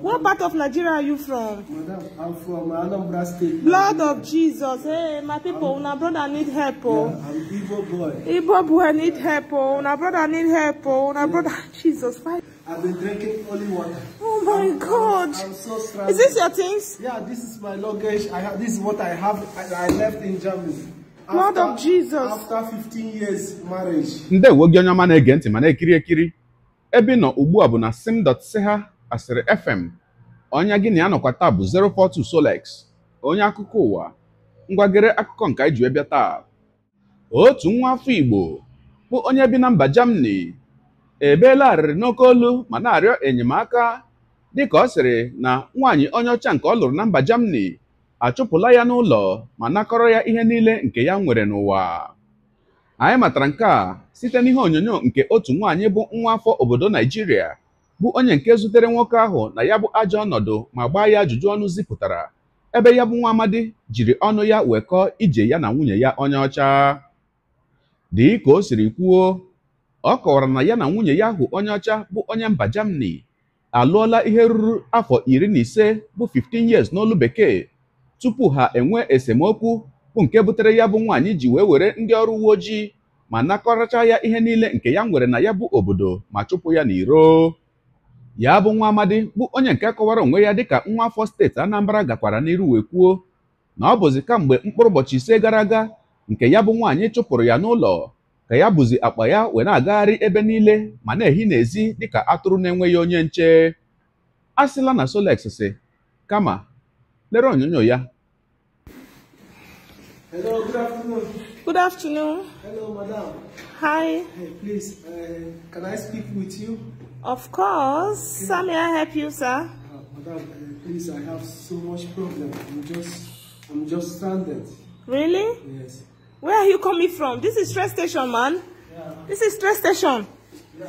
What part of Nigeria are you from? Madam, I'm from Anambra State. Blood of Jesus. Hey, my people, I'm, una brother need help. Oh. Yeah, I'm Igbo boy. Igbo boy need help. Oh. Una brother need help. Oh. Una yeah. brother, Jesus. Why? I've been drinking only water. Oh my I'm, God. I'm, I'm so stranded. Is this your things? Yeah, this is my luggage. I have, this is what I have. I, I left in Germany. After, of Jesus. After 15 years marriage. Ndị ewe gị onye mane kiri ege ntị ma ubu abu na sim dot seha. Asịrị FM onye gị na ya nọkwa taa bụ 042 Solex onye akụkọ ụwa ngwagere akụkọ nke anyị ji wee bịa taa otu nwa afọ Igbo bụ onye bi na mba jamani ebeela arịrị n'oke olu ma na-arịọ enyemaka dịka ọ sịrị na nwaanyị onye ọcha nke ọ lụrụ na mba jamani achụpụla ya n'ụlọ ma nakọrọ ya ihe niile nke ya nwere n'ụwa anyị matara nke a site n'ihe onyonyo nke otu nwaanyị bụ nwa afọ obodo Naijiria bụ onye nke zutere nwoke ahụ na ya bụ ajọ ọnọdụ ma gbaa ya ajụjụ ọnụ zipụtara ebe ya bụ nwa amadi jiri ọnụ ya wekọọ ije ya na nwunye ya onye ọcha dịka o siri kwuo ọ kọwara na ya na nwunye ya ahụ onye ọcha bụ onye mba jamani alụọla ihe ruru afọ iri na ise bụ 15 years n'olu bekee tupu ha enwee esemokwu bụ nke butere ya bụ nwaanyị ji wee were ndị ọrụ uwe ojii ma nakọracha ya ihe niile nke ya nwere na ya bụ obodo ma chụpụ ya n'iro ya bụ nwa amadi bụ onye nke kọwara onwe ya dịka nwa afọ steeti anambra gakwara n'iru wee kwuo na ọ bụzi kamgbe mkpụrụ ụbọchị ise gara aga nke ya bụ nwaanyị chụpụrụ ya n'ụlọ ka ya bụzi akpa ya wee na-agagharị ebe niile ma na-ehi n'ezi dịka atụrụ na-enweghị onye nche a sịla na Solex si kama lere onyonyo ya Of course. Okay. May I help you, sir? Uh, madam, uh, please, I have so much problem. I'm just, I'm just stranded. Really? Yes. Where are you coming from? This is stress station, man. Yeah. This is stress station. Yeah.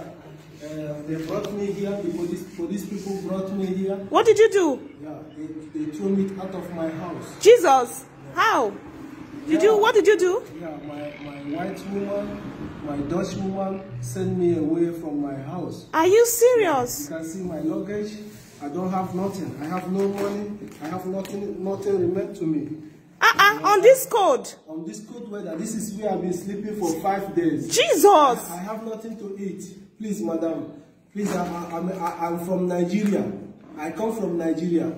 Uh, they brought me here. The for these people brought me here. What did you do? Yeah, they, they threw me out of my house. Jesus. Yeah. How? Did yeah. you? What did you do? Yeah, my, my white woman My Dutch woman sent me away from my house. Are you serious? You can see my luggage. I don't have nothing. I have no money. I have nothing. Nothing remained to me. Uh -uh, on this cold? On this cold weather. This is where I've been sleeping for five days. Jesus! I, I have nothing to eat. Please, madam. Please, I, I, I'm, I, I'm from Nigeria. I come from Nigeria.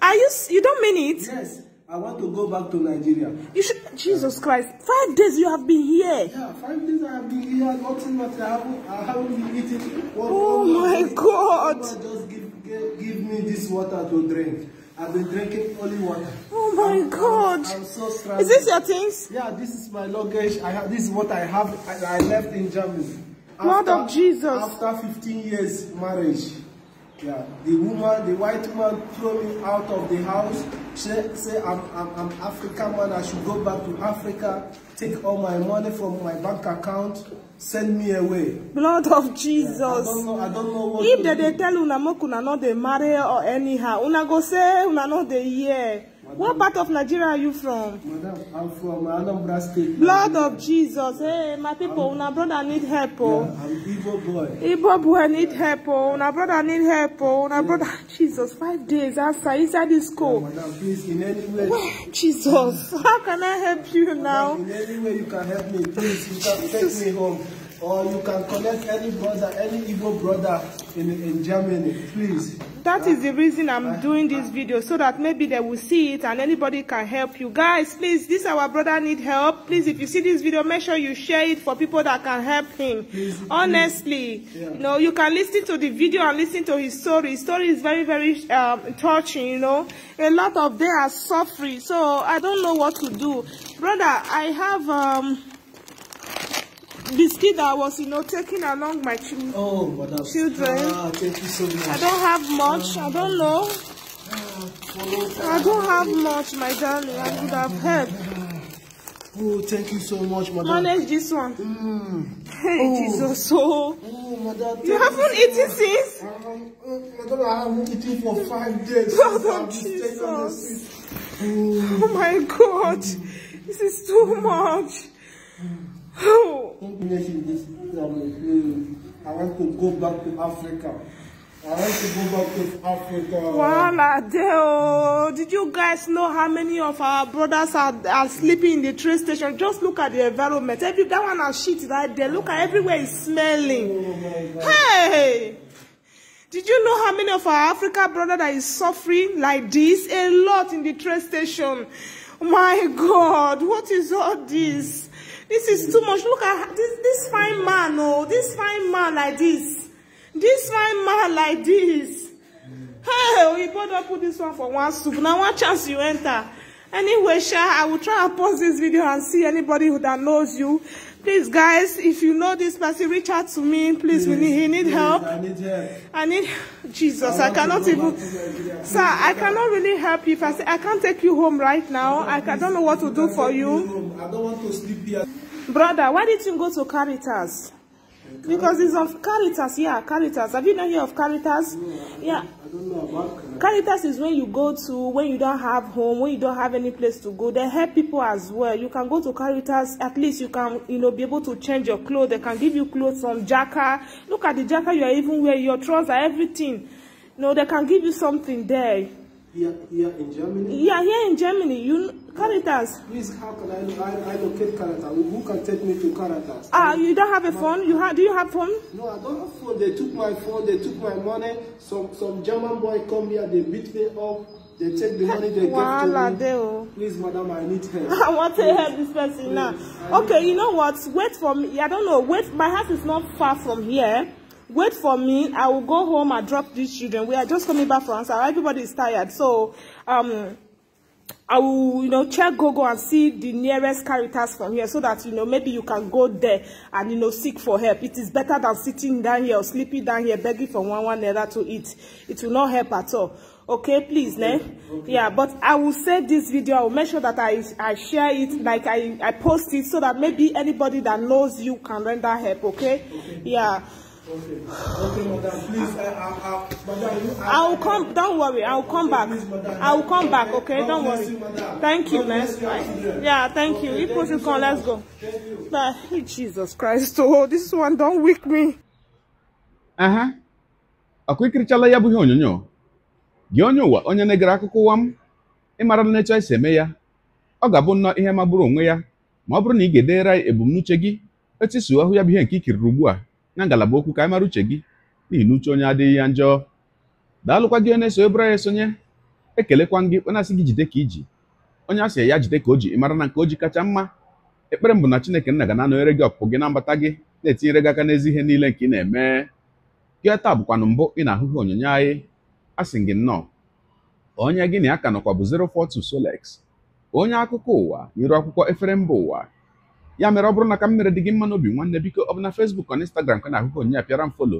Are you... You don't mean it? Yes. I want to go back to Nigeria. You should... Jesus Christ. Five days you have been here. Yeah, five days I have been here. Nothing but I haven't, I haven't been eating. What, oh what, my God. God. Just give, give, give me this water to drink. I've been drinking only water. Oh my I'm, God. I'm, I'm so stressed. Is this your things? Yeah, this is my luggage. I have, this is what I have. I, I left in Germany. After, Lord of Jesus. After 15 years marriage. Yeah. The woman, the white man throw me out of the house, say, say I'm, I'm, I'm African man, I should go back to Africa, take all my money from my bank account, send me away. Blood of Jesus. Yeah, I don't know, I don't know what If they, they tell una make una no dey marry or anyhow, una go say una no dey hear. What part of Nigeria are you from? Madam, I'm from Anambra State. Blood of Jesus. Hey, my people, una brother need help. Oh. Yeah, I'm Igbo boy. Igbo boy need help. Oh. Una brother need help. Oh. yeah. brother, Jesus, five days after inside this school. Yeah, madam, please, in any way. Jesus, how can I help you madam, now? In any way you can help me, please. You can take me home or you can connect any brother, any Igbo brother in, in Germany, please. That is the reason I'm doing this video, so that maybe they will see it and anybody can help you. Guys, please, this our brother need help. Please, if you see this video, make sure you share it for people that can help him. Please, Honestly, please. Yeah. you know, you can listen to the video and listen to his story. His story is very, very um, touching, you know. A lot of them are suffering, so I don't know what to do. Brother, I have... Um, biscuit that was, you know, taking along my children. Oh, madam. Children. Ah, thank you so much. I don't have much. I don't know. Ah, I don't have much, my darling. I could have helped. Oh, thank you so much, madam. Manage this one. Mm. Hey, oh. Jesus, so. Oh, madam. You haven't you eaten since? Um, madam, I haven't eaten for five days. Jesus. Oh. oh, my God. Mm. This is too hmm. much. Hmm. Oh. English in this um, I want to go back to Africa. I want to go back to Africa. Wahala dey o. Did you guys know how many of our brothers are, are sleeping in the train station? Just look at the environment. Every that one has shit right there. Look at everywhere is smelling. Oh hey! Did you know how many of our Africa brother that is suffering like this? A lot in the train station. My God, what is all this? This is too much. Look at this, this fine man, oh, this fine man like this. This fine man like this. Hey, we better put this one for one soup. Now one chance you enter. Anyway, Sha, I will try and pause this video and see anybody who that knows you. Please, guys, if you know this person, reach out to me. Please, please we need, he need please, help. I need help. I need Jesus. I, I cannot even, sir. I cannot really help you. If I say I can't take you home right now, no, I, I don't know what to do for you. Home. I don't want to sleep here. Brother, why didn't you go to Caritas? Because it's of Caritas, yeah, Caritas. Have you not heard of Caritas? yeah. I don't know about Caritas. is when you go to, when you don't have home, when you don't have any place to go. They help people as well. You can go to Caritas, at least you can, you know, be able to change your clothes. They can give you clothes, some jacket. Look at the jacket you are even wearing, your trousers, everything. no, they can give you something there. Here, here in Germany? Yeah, here in Germany. You Caritas. Please, how can I, I, I locate Caritas? Who can take me to Caritas? Ah, you don't have a my, phone? You ha do you have phone? No, I don't have phone. They took my phone. They took my money. Some some German boy come here. They beat me up. They take the money they Wala give to me. Deo. Please, madam, I need help. I want to help this person Please. now. I okay, you know what? Wait for me. I don't know. Wait, my house is not far from here wait for me i will go home and drop these children we are just coming back from answer everybody is tired so um I will, you know, check Google and see the nearest Caritas from here so that, you know, maybe you can go there and, you know, seek for help. It is better than sitting down here or sleeping down here begging for one one another to eat. It will not help at all. Okay, please, okay. ne? Okay. Yeah, but I will save this video. I will make sure that I, I share it, like I, I post it so that maybe anybody that knows you can render help, okay? okay. Yeah. Okay. I, will come. Don't worry. I will come back. I will come back. Okay, don't worry. thank you, man. Yeah, thank you. If you come, let's go. Jesus Christ, oh, this one don't wake me. Uh huh. ikirichala ya bụ ihe onyonyo. Gị onye ụwa onye na-egere akụkọ ụwa m ịmara na etu esi eme ya. Ọ ga-abụ nnọọ ihe magburu onwe ya ma ọ bụrụ na ị ga ya ebumnuche gị etu na ngalaba okwu ka anyị mara uche gị n'ihi na uche onye adịghị ya njọ daalụkwa gị onye so ebere ya esonye ekelekwa gị onye asị gị jide ka iji onye asị ya jide ka o ji mara na nke o ji kacha mma ekpere m bụ na chineke nna ga na-anọnyere gị ọpụpụ gị na mbata gị na-etinyere gị aka n'ezi ihe niile nke ị na-eme gị taa bụkwanụ mbụ ị na-ahụghị onyonyo anyị asị gị nnọọ onye gị na ya ka nọkwa bụ 042 Solex onye akụkọ ụwa n'iru akwụkwọ efere mba ụwa ya mere ọ bụrụ na ka m mere dị gị mma n'obi nwanne biko ọ bụ na Facebook na Instagram ka na-ahụ onyinye apịara m folo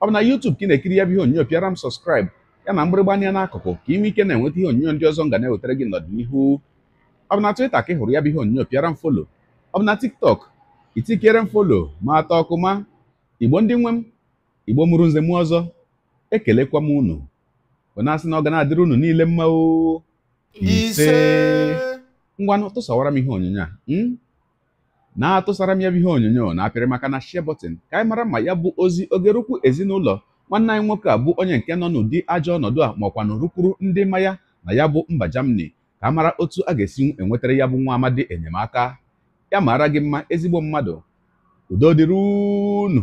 ọ bụ na YouTube ka ị na-ekiri ya bụ ihe onyinye pịara m sọskraịb ya na mgbịrịgba anya n'akụkụ ka ị nwee ike na-enweta ihe onyinyo ndị ọzọ m ga na-ewetara gị n'ọdịnihu ọ bụ na Twitter ka ị hụrụ ya bụ ihe onyinyo pịara m folo ọ bụ na TikTok itikere m folo ma atọ ọkụ ma igbo ndị nwe m igbo mụrụ nze m ọzọ ekelekwa m unu bụ na asị na ọ ga na-adịrị unu niile mma ise ngwanụ tụsawara m ihe onyinyo a hmm? na-atụsara m ya bụ ihe onyonyo na apịrị maka na share ka anyị mara ma ya bụ ozi ogerukwu ezinụlọ nwanne anyị nwoke a bụ onye nke nọ n'ụdị ajọ ọnọdụ a ma ọkwa na rukwuru ndị mmanya na ya bụ mba jamani ka a mara otu a ga-esi enwetara ya bụ nwa amadi enyemaka ya mara gị mma ezigbo mmadụ udo dịrị unu